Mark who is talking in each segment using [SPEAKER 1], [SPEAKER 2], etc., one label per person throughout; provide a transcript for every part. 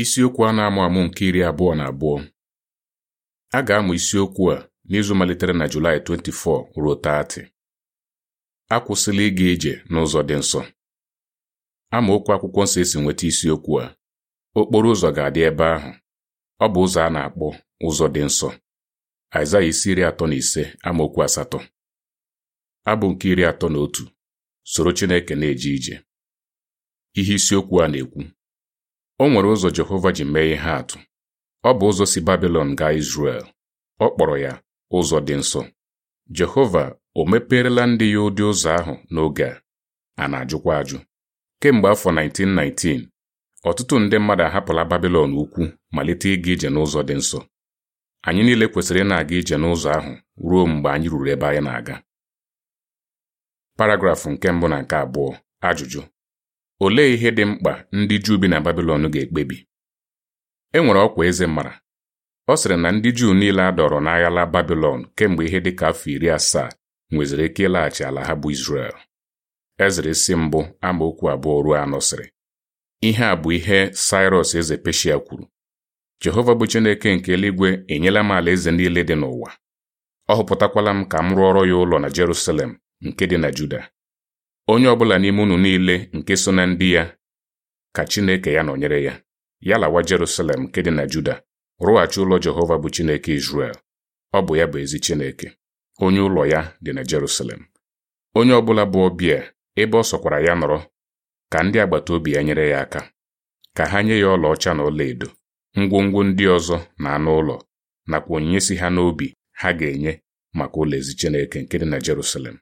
[SPEAKER 1] Isiokwu a na-amụ amụ nke iri abụọ na abụọ a ga-amụ isiokwu a n'izu malitere na Julaị 24 ruo 30. Akwụsịla ịga ije n'ụzọ dị nsọ amaokwu akwụkwọ nsọ esi nweta isiokwu a okporo ụzọ ga-adị ebe ahụ ọ bụ ụzọ a na-akpọ ụzọ dị nsọ Aịzaya isi iri atọ na ise amaokwu asatọ abụ nke iri atọ na otu soro Chineke na-eje ije ihe isiokwu a na-ekwu O nwere ụzọ Jehova ji mee ihe atụ. Ọ bụ ụzọ si Babilọn gaa Izrel. Ọ kpọrọ ya ụzọ dị nsọ. Jehova o mepeerela ndị ya ụdị ụzọ ahụ n'oge a a na-ajụkwa ajụ. Kemgbe afọ 1919, ọtụtụ ndị mmadụ ahapụla Babilọn ukwu malite ịga ije n'ụzọ dị nsọ. Anyị niile kwesịrị ị na-aga ije n'ụzọ ahụ ruo mgbe anyị ruru ebe anyị na-aga. Paragraf nke mbụ na nke abụọ ajụjụ Olee ihe dị mkpa ndị Juu bi na Babilọn ga-ekpebi? E nwere ọkwa eze mara. Ọ sịrị na ndị Juu niile a dọrọ n'aghala Babilọn kemgbe ihe dị ka afọ iri asaa nweziri ike ịlaghachi ala ha bụ Izrel. Ezra isi mbụ amaokwu abụọ ruo anọ sịrị. Ihe a bụ ihe Sairọs eze Peshia kwuru. Jehova bụ Chineke nke eluigwe enyela m ala eze niile dị n'ụwa. Ọ họpụtakwala m ka m rụọrọ ya ụlọ na Jerusalem nke dị na Juda. onye ọbụla n'ime unu niile nke so na ndị ya ka Chineke ya nọnyere ya ya lawa Jerusalem nke dị na Juda rụghachi ụlọ Jehova bụ Chineke Izrel ọ bụ ya bụ ezi Chineke onye ụlọ ya dị na Jerusalem onye ọbụla bụ ọbịa ebe ọ sọkwara ya nọrọ ka ndị agbata obi ya nyere ya aka ka ha nye ya ọlaọcha na ọlaedo ngwongwo ndị ọzọ na anụ ụlọ nakwa onyinye si ha n'obi ha ga-enye maka ụlọ ezi Chineke nke dị na Jerusalem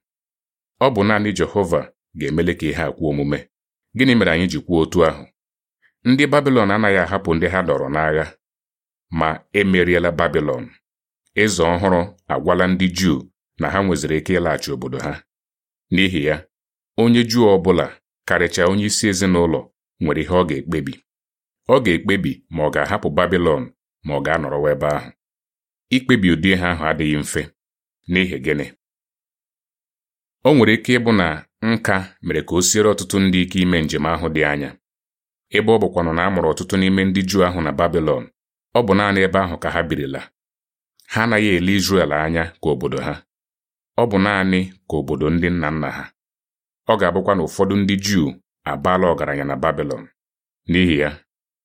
[SPEAKER 1] ọ bụ naanị Jehova ga-emele ka ihe akwụ omume gịnị mere anyị ji kwuo otu ahụ ndị Babilọn anaghị ahapụ ndị ha dọrọ n'agha ma emeriela Babilọn eze ọhụrụ agwala ndị Juu na ha nweziri ike ịlaghachi obodo ha n'ihi ya onye Juu ọ bụla karịchaa onye isi ezinụlọ nwere ihe ọ ga-ekpebi ọ ga-ekpebi ma ọ ga-ahapụ Babilọn ma ọ ga-anọrọwa ebe ahụ ikpebi ụdị ha ahụ adịghị mfe n'ihi gịnị o nwere ike ịbụ na nka mere ka o siere ọtụtụ ndị ike ime njem ahụ dị anya ebe ọ bụkwanụ na a mụrụ ọtụtụ n'ime ndị Juu ahụ na Babilọn ọ bụ naanị ebe ahụ ka ha birila ha anaghị ele Izrel anya ka obodo ha ọ bụ naanị ka obodo ndị nna nna ha ọ ga-abụkwa na ụfọdụ ndị Juu abaala ọgaranya na Babilọn n'ihi ya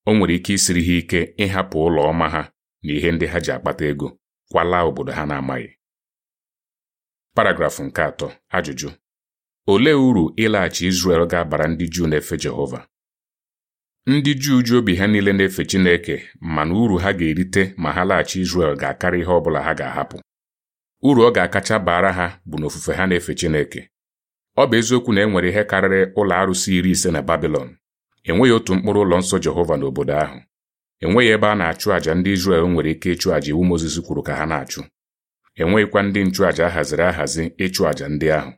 [SPEAKER 1] o nwere ike isiri ha ike ịhapụ ụlọ ọma ha na ihe ndị ha ji akpata ego kwala obodo ha na-amaghị paragrafụ nke atọ ajụjụ olee uru ịlaghachi Izrel ga-abara ndị Juu na-efe Jehova ndị Juu ji obi ha niile na-efe Chineke mana uru ha ga-erite ma ha laghachi Izrel ga-akarị ihe ọ bụla ha ga-ahapụ uru ọ ga-akacha baara ha bụ na ofufe ha na-efe Chineke ọ bụ eziokwu na e nwere ihe karịrị ụlọ arụsị iri ise na Babilọn enweghị otu mkpụrụ ụlọ nsọ Jehova n'obodo ahụ enweghị ebe a na-achụ àjà ndị Izrel nwere ike ịchụ àjà iwu Mozis kwuru ka ha na-achụ enweghịkwa ndị nchụàjà ahaziri ahazi ịchụ àjà ndị ahụ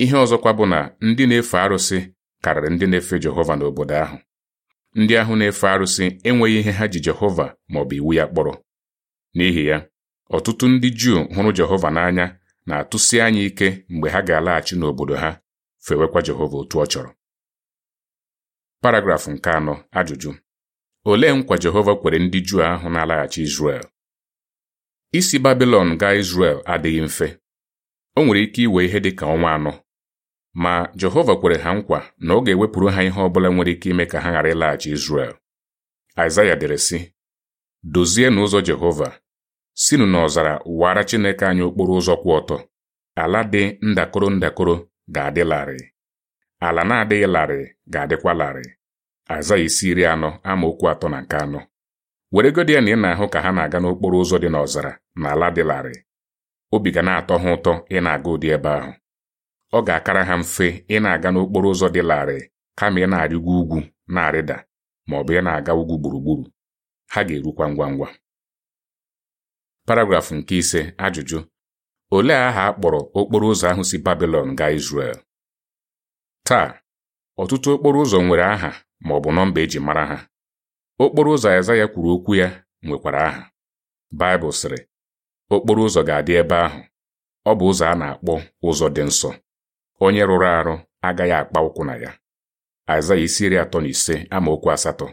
[SPEAKER 1] ihe ọzọkwa bụ na ndị na-efe arụsị karịrị ndị na-efe Jehova n'obodo ahụ ndị ahụ na-efe arụsị enweghị ihe ha ji Jehova ma ọ bụ iwu ya kpọrọ n'ihi ya ọtụtụ ndị Juu hụrụ Jehova n'anya na-atụsi anya ike mgbe ha ga-alaghachi n'obodo ha fewekwa Jehova otu ọ chọrọ paragrafụ nke anọ ajụjụ olee nkwa Jehova kwere ndị Juu ahụ na-alaghachi Izrel isi Babilon gaa Izrel adịghị mfe o nwere ike iwe ihe dị ka ọnwa anọ ma Jehova kwere ha nkwa na ọ ga-ewepụrụ ha ihe ọbụla nwere ike ime ka ha ghara ịlaghachi Izrel Aịzaya dere sị Dozie n'ụzọ Jehova Sinu n'ọzara wara Chineke anyị okporo ụzọ kwụ ọtọ ala dị ndakọrọ ndakọrọ ga-adị larịị ala na-adịghị larịị ga-adịkwa larịị Aịzaya isi iri anọ amaokwu atọ na nke anọ weregodi ya na ị na-ahụ ka ha na-aga n'okporo ụzọ dị n'ọzara na ala dị larịị obi ga na-atọ ha ụtọ ị na-aga ụdị ebe ahụ ọ ga-akara ha mfe ị na-aga n'okporo ụzọ dị larịị kama ị na-arịgo ugwu na-arịda ma ọ bụ ị na-aga ugwu gburugburu ha ga-erukwa ngwa ngwa paragrafụ nke ise ajụjụ olee aha a kpọrọ okporo ụzọ ahụ si Babilọn gaa Izrel taa ọtụtụ okporo ụzọ nwere aha ma ọ bụ nọmba eji mara ha okporo ụzọ Aịzaya kwuru okwu ya nwekwara aha Baịbụl sịrị okporo ụzọ ga-adị ebe ahụ ọ bụ ụzọ a na-akpọ ụzọ dị nsọ onye rụrụ arụ agaghị akpa ụkwụ na ya Aịzaya isi iri atọ na ise amaokwu asatọ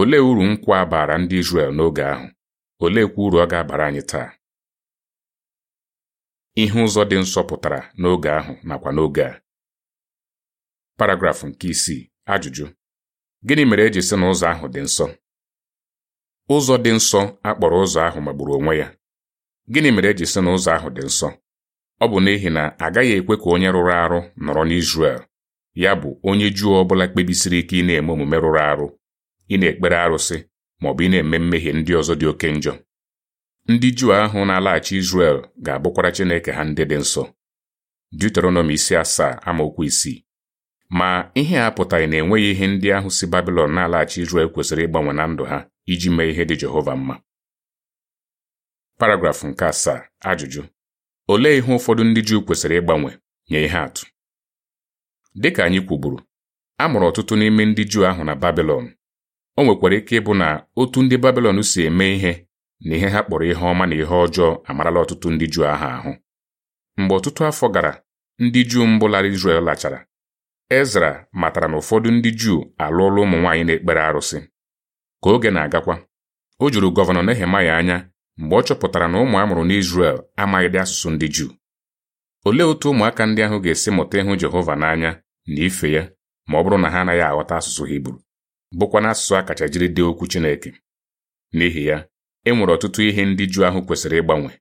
[SPEAKER 1] olee uru nkwa abara baara ndị Izrel n'oge ahụ oleekwa uru ọ ga-abara anyị taa ihe ụzọ dị nsọ pụtara n'oge ahụ nakwa n'oge a paragrafụ nke isii ajụjụ gịnị mere eji sị na ụzọ ahụ dị nsọ ụzọ dị nsọ akpọrọ ụzọ ahụ magburu onwe ya gịnị mere eji sị na ụzọ ahụ dị nsọ Ọ bụ n'ihi na agaghị ekwe ka onye rụrụ arụ nọrọ n'Izrel ya bụ onye Juu ọ bụla kpebisiri ike ị na-eme omume rụrụ arụ ị na-ekpere arụsị ma ọ bụ ị na-eme mmehie ndị ọzọ dị oke njọ ndị Juu ahụ na-alaghachi Izrel ga-abụkwara Chineke ha ndị dị nsọ Deuteronomi isi asaa amaokwu isii ma ihe a pụtaghị na enweghị ihe ndị ahụ si Babilọn na-alaghachi Izrel kwesịrị ịgbanwe na ndụ ha iji mee ihe dị Jehova mma paragrafụ nke asaa ajụjụ Olee ihe ụfọdụ ndị Juu kwesịrị ịgbanwe nye ihe atụ? Dị ka anyị kwuburu, a mụrụ ọtụtụ n'ime ndị Juu ahụ na Babilọn. O nwekwara ike ịbụ na otu ndị Babilọn si eme ihe na ihe ha kpọrọ ihe ọma na ihe ọjọọ amarala ọtụtụ ndị Juu ahụ ahụ. Mgbe ọtụtụ afọ gara, ndị Juu mbụ lara Izrel lachara. Ezra matara na ụfọdụ ndị Juu alụọla ụmụ nwaanyị na-ekpere arụsị. Ka oge na-agakwa, o juru gọvanọ Nehemaya anya mgbe ọ chọpụtara na ụmụ a mụrụ amaghị dị asụsụ ndị Juu olee otu ụmụaka ndị ahụ ga-esi mụta ịhụ Jehova n'anya na ife ya ma ọ bụrụ na ha anaghị aghọta asụsụ Hibru bụkwa na asụsụ a kacha jiri dee okwu Chineke n'ihi ya e nwere ọtụtụ ihe ndị Juu ahụ kwesịrị ịgbanwe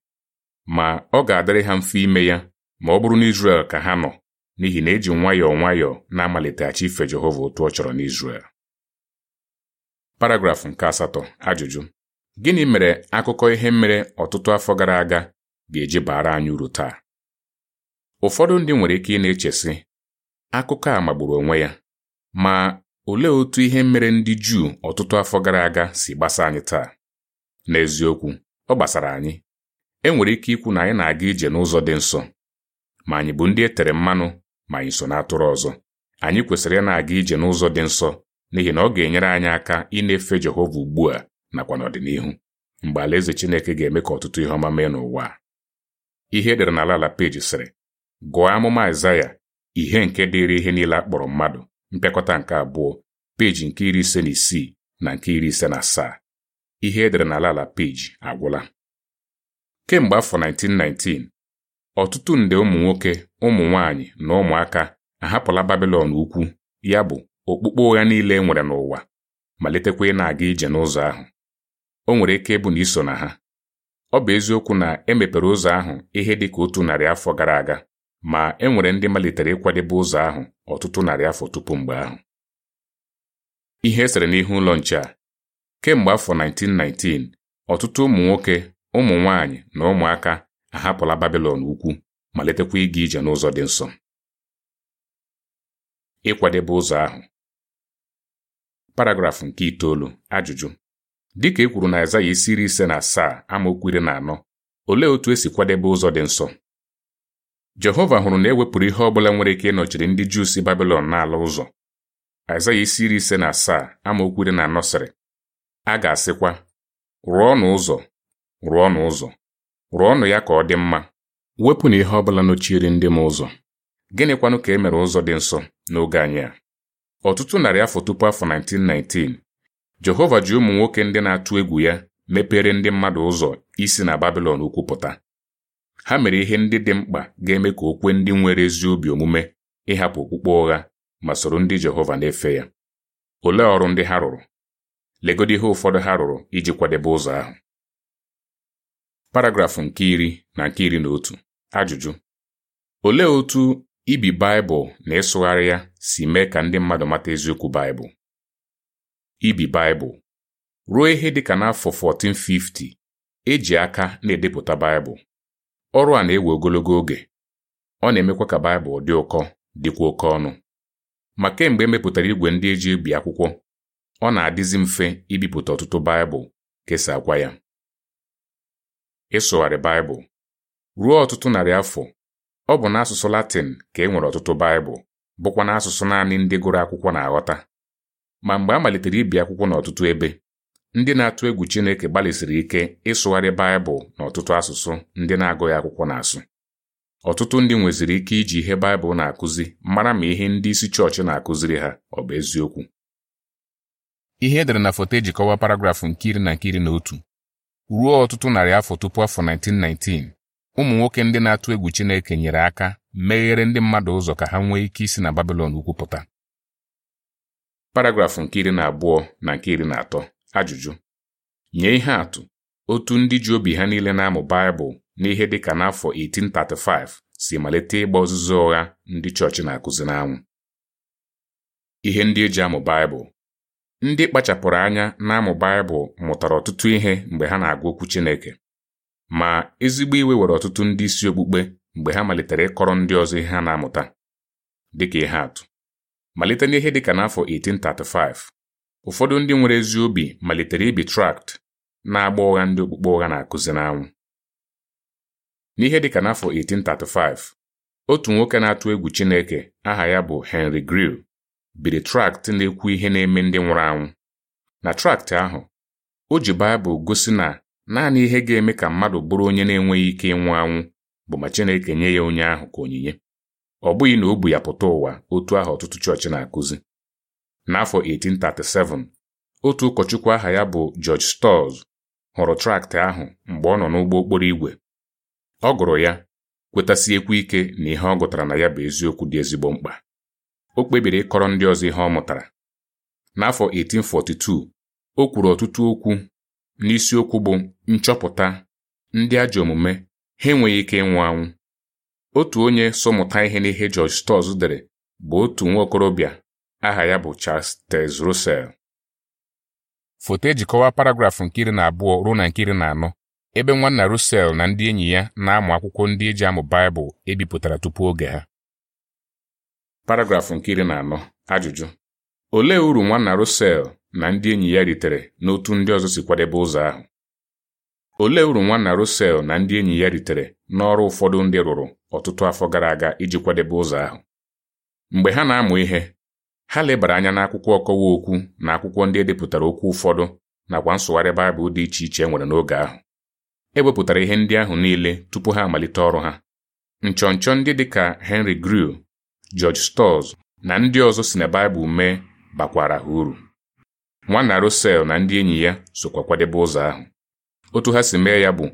[SPEAKER 1] ma ọ ga-adịrị ha mfe ime ya ma ọ bụrụ na Izrel ka ha nọ n'ihi na eji nwayọọ nwayọọ na-amaliteghachi ife Jehova otu ọ chọrọ n'Izrel paragrafụ nke asatọ ajụjụ Gịnị mere akụkọ ihe mere ọtụtụ afọ gara aga ga-eji baara anyị uru taa? Ụfọdụ ndị nwere ike ị na-echesị akụkọ a magburu onwe ya ma olee otu ihe mere ndị Juu ọtụtụ afọ gara aga si gbasa anyị taa? N'eziokwu, ọ gbasara anyị. E nwere ike ikwu na anyị na-aga ije n'ụzọ dị nsọ ma anyị bụ ndị e tere mmanụ ma anyị so n'atụrụ ọzọ. Anyị kwesịrị ị na-aga ije n'ụzọ dị nsọ n'ihi na ọ ga-enyere anyị aka ịna-efe Jehova ugbu a nakwa n'ọdịnihu mgbe alaeze Chineke ga-eme ka ọtụtụ ihe ọma mee n'ụwa Ihe edere n'ala ala peji sịrị gụọ amụma Aịzaya ihe nke dịrị ihe niile akpọrọ mmadụ mpịakọta nke abụọ peji nke iri ise na isii na nke iri ise na asaa ihe edere n'ala ala peji agwụla kemgbe afọ 1919 ọtụtụ nde ụmụ nwoke ụmụ nwanyị na ụmụaka ahapụla babilon ukwu ya bụ okpukpe ụgha niile e nwere n'ụwa malitekwa ị na-aga ije n'ụzọ ahụ o nwere ike ịbụ na iso na ha ọ bụ eziokwu na emepere ụzọ ahụ ihe dị ka otu narị afọ gara aga ma e nwere ndị malitere ịkwadebe ụzọ ahụ ọtụtụ narị afọ tupu mgbe ahụ ihe esere n'ihu ụlọ nche a kemgbe afọ 1919 ọtụtụ ụmụ nwoke ụmụ nwanyị na ụmụaka ahapụla Babilọn ukwu malitekwa ịga ije n'ụzọ dị nsọ ịkwadebe ụzọ ahụ paragrafụ nke itoolu ajụjụ ka e kwuru na Aịzaya isi iri ise na asaa amaokwu iri na anọ olee otu esi kwadebe ụzọ dị nsọ Jehova hụrụ na e wepụrụ ihe ọ bụla nwere ike ịnọchiri ndị Juu si na n'ala ụzọ Aịzaya isi iri ise na asaa amaokwu iri na anọ sịrị a ga-asịkwa rụọnụ ụzọ rụọnụ ụzọ rụọnụ ya ka ọ dị mma Wepụ na ihe ọ bụla nọchiri ndị m ụzọ gịnịkwanụ ka e mere ụzọ dị nsọ n'oge anyị a ọtụtụ narị afọ tupu afọ 1919 Jehova ji ụmụ nwoke ndị na-atụ egwu ya mepere ndị mmadụ ụzọ isi na Babilọn ukwu pụta ha mere ihe ndị dị mkpa ga-eme ka okwe ndị nwere ezi obi omume ịhapụ okpukpe ụgha ma soro ndị Jehova na-efe ya olee ọrụ ndị ha rụrụ legodi ihe ụfọdụ ha rụrụ iji kwadebe ụzọ ahụ paragrafụ nke iri na nke iri na otu ajụjụ olee otú ibi Baịbụl na ịsụgharị ya si mee ka ndị mmadụ mata eziokwu Baịbụl ibi Baịbụl ruo ihe dị ka n'afọ 1450 eji aka na-edepụta Baịbụl ọrụ a na-ewe ogologo oge ọ na-emekwa ka Baịbụl dị ụkọ dịkwa oke ọnụ ma kemgbe emepụtara igwe ndị eji ebi akwụkwọ ọ na-adịzi mfe ibipụta ọtụtụ Baịbụl kesakwa ya ịsụgharị Baịbụl ruo ọtụtụ narị afọ ọ bụ n'asụsụ Latin ka e nwere ọtụtụ Baịbụl bụkwa n'asụsụ naanị ndị gụrụ akwụkwọ na-aghọta ma mgbe a malitere ibi akwụkwọ n'ọtụtụ ebe ndị na-atụ egwu Chineke gbalịsiri ike ịsụgharị Baịbụl n'ọtụtụ asụsụ ndị na-agụghị akwụkwọ na-asụ ọtụtụ ndị nweziri ike iji ihe Baịbụl na-akụzi mara ma ihe ndị isi chọọchị na-akụziri ha ọ bụ eziokwu ihe edere na foto eji kọwa paragrafụ nke iri na nke iri na otu ruo ọtụtụ narị afọ tupu afọ 1919 ụmụ nwoke ndị na-atụ egwu Chineke nyere aka meghere ndị mmadụ ụzọ ka ha nwee ike isi na babilon ukwupụta paragrafụ nke iri na abụọ na nke iri na atọ ajụjụ nye ihe atụ otu ndị ji obi ha niile na-amụ Baịbụl n'ihe dịka n'afọ 1835 si malite ịgba ọzụzụ ụgha ndị chọọchị na-akụzi n'anwụ ihe ndị eji amụ Baịbụl ndị kpachapụrụ anya na-amụ Baịbụl mụtara ọtụtụ ihe mgbe ha na-agụ okwu Chineke ma ezigbo iwe were ọtụtụ ndị isi okpukpe mgbe ha malitere ịkọrọ ndị ọzọ ihe ha na-amụta dịka ihe atụ malite n'ihe dịka n'afọ 1835 ụfọdụ ndị nwere ezi obi malitere ibi trakt na-agba ụgha ndị okpukpe ụgha na-akụzi n'anwụ n'ihe dịka n'afọ 1835 otu nwoke na-atụ egwu Chineke aha ya bụ Henry gril biri trakt na-ekwu ihe na-eme ndị nwụrụ anwụ na trakt ahụ o ji Baịbụl gosi na naanị ihe ga-eme ka mmadụ bụrụ onye na-enweghị ike ịnwụ anwụ bụ ma Chineke nye ya onye ahụ ka onyinye ọ bụghị na o bu ya pụta ụwa otu ahụ ọtụtụ chọọchị na-akụzi n'afọ 1837 otu ụkọchukwu aha ya bụ George Stores hụrụ traktị ahụ mgbe ọ nọ n'ụgbọ okporo ọ gụrụ ya kwetasiekwu ike na ihe ọ gụtara na ya bụ eziokwu dị ezigbo mkpa o kpebiri ịkọrọ ndị ọzọ ihe ọ mụtara n'afọ 1842 o kwuru ọtụtụ okwu n'isiokwu bụ nchọpụta ndị ajọ omume ha enweghị ike ịnwụ anwụ otu onye sọmụta ihe n'ihe George Stores dere bụ otu nwa okorobịa aha ya bụ Charles Taze Russell foto e kọwa paragrafụ nke iri na abụọ ruo na nke iri na anọ ebe nwanna Russell na ndị enyi ya na-amụ akwụkwọ ndị eji amụ Baịbụl ebipụtara tupu oge ha paragrafụ nke iri na anọ ajụjụ olee uru nwanna Russell na ndị enyi ya ritere n'otu ndị ọzọ si kwadebe ụzọ ahụ olee uru nwanna Russell na ndị enyi ya ritere n'ọrụ ụfọdụ ndị rụrụ ọtụtụ afọ gara aga iji kwadebe ụzọ ahụ mgbe ha na-amụ ihe ha lebara anya n'akwụkwọ ọkọwa okwu na akwụkwọ ndị edepụtara okwu ụfọdụ nakwa nsụgharị Baịbụl dị iche iche e nwere n'oge ahụ e wepụtara ihe ndị ahụ niile tupu ha amalite ọrụ ha nchọnchọ ndị dị ka Henry Grew George Storrs na ndị ọzọ si na Baịbụl mee bakwara ha uru nwanna Russell na ndị enyi ya sokwa kwadebe ụzọ ahụ otu ha si mee ya bụ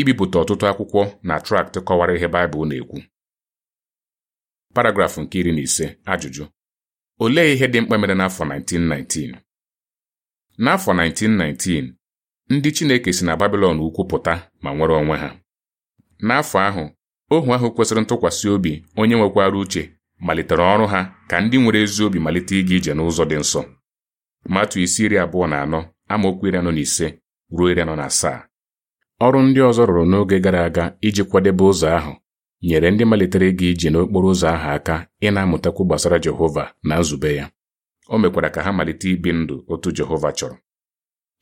[SPEAKER 1] ibipụta ọtụtụ akwụkwọ na traktị kọwara ihe Baịbụl na-ekwu paragrafụ nke iri na ise ajụjụ olee ihe dị mkpa mere n'afọ 1919 n'afọ 1919 ndị Chineke si na Babilọn ukwu pụta ma nwere onwe ha n'afọ ahụ ohu ahụ kwesịrị ntụkwasị obi onye nwekwara uche malitere ọrụ ha ka ndị nwere ezi obi malite ịga ije n'ụzọ dị nsọ Matu isi iri abụọ na anọ amaokwu iri anọ na ise ruo iri anọ na asaa ọrụ ndị ọzọ rụrụ n'oge gara aga iji kwadebe ụzọ ahụ nyere ndị malitere ịga ije n'okporo ụzọ ahụ aka ịna amụtakwu gbasara Jehova na nzube ya o mekwara ka ha malite ibi ndụ otu Jehova chọrọ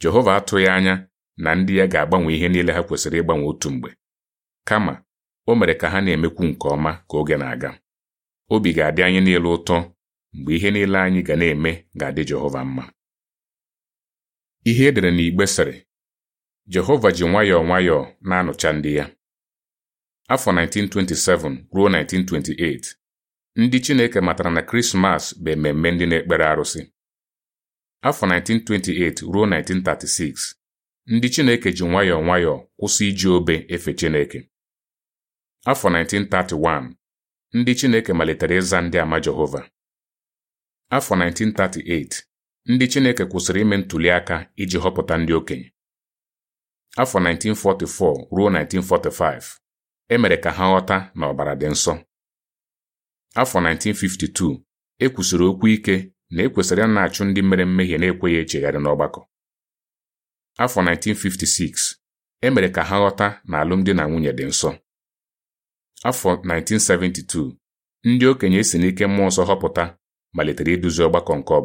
[SPEAKER 1] Jehova atụghị anya na ndị ya ga-agbanwe ihe niile ha kwesịrị ịgbanwe otu mgbe kama o mere ka ha na-emekwu nke ọma ka oge na-aga obi ga-adị anyị niile ụtọ mgbe ihe niile anyị ga na-eme ga-adị Jehova mma ihe edere n'igbe sịrị Jehova ji nwayọọ nwayọọ na-anụcha ndị ya. Afọ 1927 ruo 1928, ndị Chineke matara na Krismas bụ ememme ndị na-ekpere arụsị. Afọ 1928 ruo 1936, ndị Chineke ji nwayọọ nwayọọ kwụsị iji obe efe Chineke. Afọ 1931, ndị Chineke malitere ịza ndị ama Jehova. Afọ 1938, ndị Chineke kwụsịrị ime ntuli aka iji họpụta ndị okenye. afọ 1944 ruo 1945 emere ka ha ghọta na ọbara dị nsọ afọ 1952 e kwusiri okwu ike na ekwesịrị a na-achụ ndị mere mmehie na-ekweghị echegharị n'ọgbakọ afọ 1956 emere ka ha ghọta na alụmdi na nwunye dị nsọ afọ 1972 ndị okenye si n'ike mmụọ nsọ họpụta malitere iduzi ọgbakọ nke ọ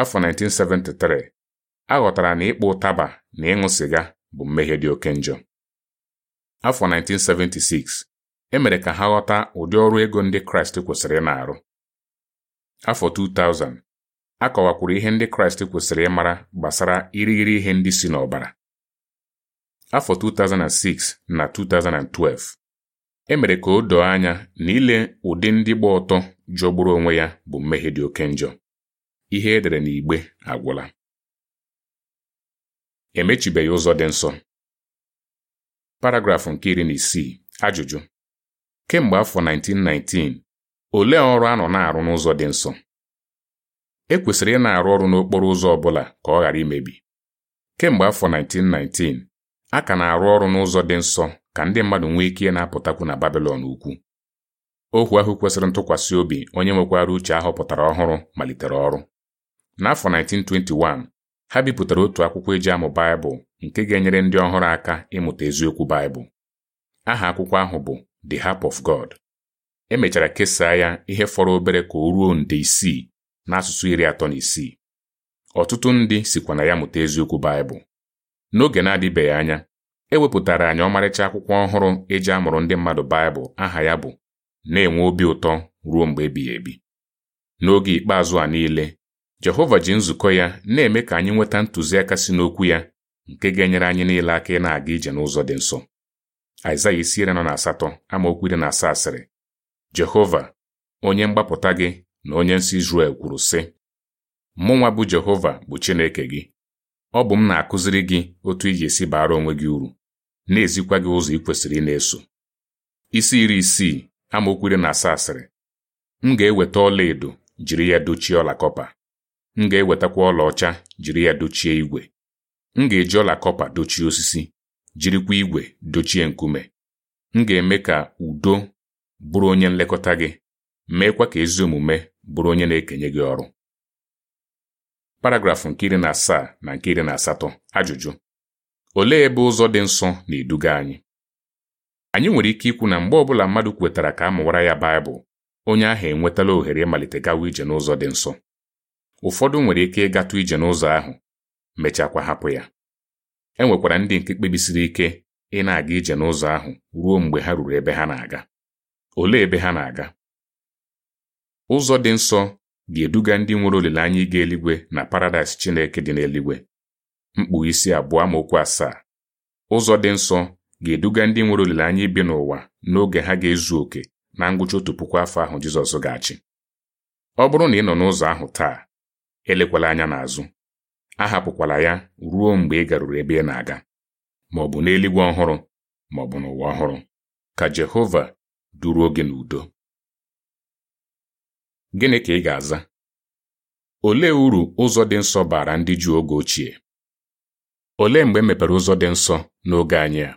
[SPEAKER 1] afọ 1973 a na ịkpụ ụtaba na ịṅụ sịga bụ mmehie dị oke njọ afọ 1976 emere ka ha ghọta ụdị ọrụ ego ndị Kraịst kwesịrị na-arụ afọ 2000 akọwakwuru ihe ndị Kraịst kwesịrị ịmara gbasara irighiri ihe ndị si n'ọbara afọ 2006 na 2012 emere ka o doo anya na ile ụdị ndị gba ọtọ jọgburu onwe ya bụ mmehie dị oke njọ ihe edere n'igbe agwụla emechibeghị ụzọ dị nsọ paragrafụ nke iri na isii ajụjụ kemgbe afọ 1919 olee ọrụ a nọ na-arụ n'ụzọ dị nsọ e kwesịrị ị na-arụ ọrụ n'okporo ụzọ ọ bụla ka ọ ghara imebi kemgbe afọ 1919 a ka na-arụ ọrụ n'ụzọ dị nsọ ka ndị mmadụ nwee ike na-apụtakwu na Babilọn ukwu ohu ahụ kwesịrị ntụkwasị obi onye nwekwara uche ahọpụtara ọhụrụ malitere ọrụ n'afọ 1921 ha bipụtara otu akwụkwọ eji amụ Baịbụl nke ga-enyere ndị ọhụrụ aka ịmụta eziokwu Baịbụl. Aha akwụkwọ ahụ bụ The Harp of God. E mechara kesaa ya ihe fọrọ obere ka o ruo nde isii n'asụsụ iri atọ na isii. Ọtụtụ ndị sikwa na ya mụta eziokwu Baịbụl. N'oge na-adịbeghị anya, e wepụtara anyị ọmarịcha akwụkwọ ọhụrụ eji amụrụ ndị mmadụ Baịbụl aha ya bụ na-enwe obi ụtọ ruo mgbe ebighị ebi. N'oge ikpeazụ a niile Jehova ji nzukọ ya na-eme ka anyị nweta ntụziaka si n'okwu ya nke ga-enyere anyị niile aka ị na-aga ije n'ụzọ dị nsọ Aịzaya isi iri na asatọ amaokwu iri na asaa sịrị Jehova onye mgbapụta gị na onye nsị Izrel kwuru sị nwa bụ Jehova bụ Chineke gị ọ bụ m na-akụziri gị otu iji esi baara onwe gị uru na-ezikwa gị ụzọ ị kwesịrị ị na-eso isi iri isii amaokwu iri na asaa sịrị m ga-eweta ọla jiri ya dochie ọla kọpa m ga-ewetakwa ọlaọcha jiri ya dochie igwe m ga-eji ọla kọpa dochie osisi jirikwa igwe dochie nkume m ga-eme ka udo bụrụ onye nlekọta gị meekwa ka ezi omume bụrụ onye na-ekenye gị ọrụ paragrafụ nke iri na asaa na nke iri na asatọ ajụjụ olee ebe ụzọ dị nsọ na-eduga anyị anyị nwere ike ikwu na mgbe ọbụla mmadụ kwetara ka a mụwara ya Baịbụl onye ahụ enwetala ohere ịmalite gawa ije n'ụzọ dị nsọ ụfọdụ nwere ike ịgatụ ije n'ụzọ ahụ mechakwa hapụ ya e nwekwara ndị nke kpebisiri ike ị na-aga ije n'ụzọ ahụ ruo mgbe ha ruru ebe ha na-aga olee ebe ha na-aga ụzọ dị nsọ ga-eduga ndị nwere olileanya ịga eluigwe na paradaịs Chineke dị n'eluigwe mkpu isi abụọ amaokwu asaa ụzọ dị nsọ ga-eduga ndị nwere olileanya ibi n'ụwa n'oge ha ga-ezu oke na ngwụcha otu puku afọ ahụ Jizọs ga-achị ọ bụrụ na ị nọ n'ụzọ ahụ taa elekwala anya n'azụ ahapụkwala ya ruo mgbe ị garuru ebe ị na-aga ma ọ bụ n'eluigwe ọhụrụ ma ọ bụ n'ụwa ọhụrụ ka Jehova duruo gị n'udo gịnị ka ị ga-aza olee uru ụzọ dị nsọ bara ndị Juu oge ochie olee mgbe e mepere ụzọ dị nsọ n'oge anyị a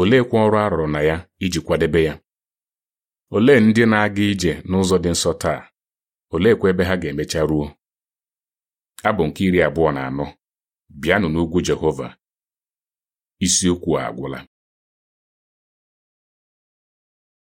[SPEAKER 1] oleekwa ọrụ a rụrụ na ya iji kwadebe ya olee ndị na-aga ije n'ụzọ dị nsọ taa oleekwa ebe ha ga-emecha ruo abụ nke iri abụọ na anọ bịanụ n'ugwu Jehova isiokwu a agwụla